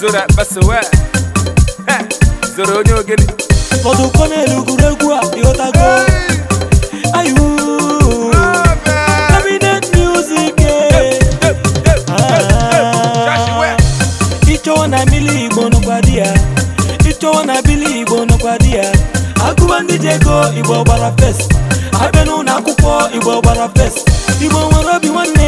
zoro akpaso eh. eh, zoro onye ogene ụfọdụ konelu a ịghọtago eh. ah. na bili igbo nọkwa na igbo ego igbo gbara fes abịa igbo gbara fes igbo nwere obi nwanne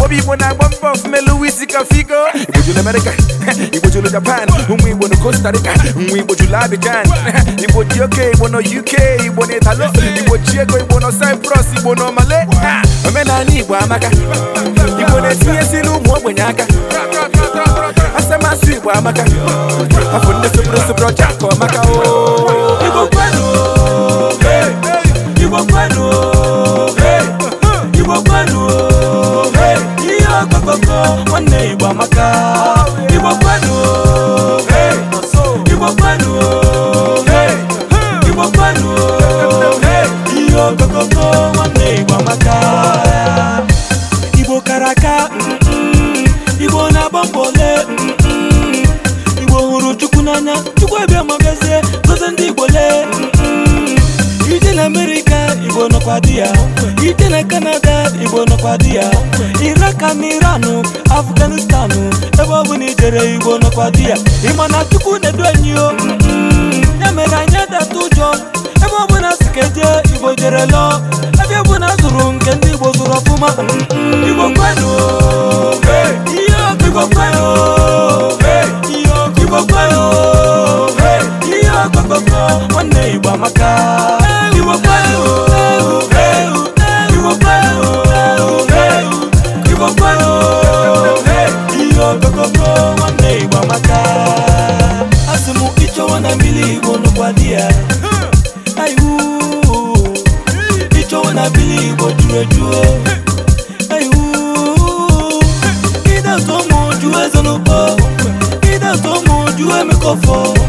ọbụ igbo na-agba mbọ ofumelu isi ka figo igbo jụrụ amerịka igbo jụrụ japan ụmụ igbo na costa rica nwa igbo jụrụ abidjan igbo oke igbo na uk igbo na Igbochi ego igbo na cyprus igbo na omale omenala igbo amaka igbo na-etinyesi n'ụmụ ogbenye aka asamasị igbo amaka afọ ndị soboro soboro ọcha ka ọmaka o oh. igbo kwenu igbo kwenu okoko nwanne igbo amaka igbo kwenu igbo kwenu igbo kwenu ihe okokoko nwanne igbo amaka igbo kara aka igbo na-agba mbọ ole igbo hụrụ chukwu n'anya chukwu ebe ma bịazie ndị igbo lee ije na amerika igbo nọkwa di ya igbo nọkwa di ya iraka na iranụ afganistanụ ebe ọ bụla ijere igbo nọkwa di ya ịma na chukwu na-edu enyi o ya mm-hmm. e mere anyị edata ụjọ ebe ọbụla si ka e igbo jere lụọ ebe na zụrụ nke ndị igbo zụrụ ọfụma mm-hmm. igbo kwenu ihe igbo ihe ihe nwanne igbo amaka nwanne Igbo amaka asị m ịchọwa na mmiri Igbo nụkwa di ya hmm. aihu ịchọwa na mmiri Igbo juru ejuo hmm. aihu hmm. ịdatụ ụmụ juo ezenụkọ ịdatụ ụmụ juo emekọfọ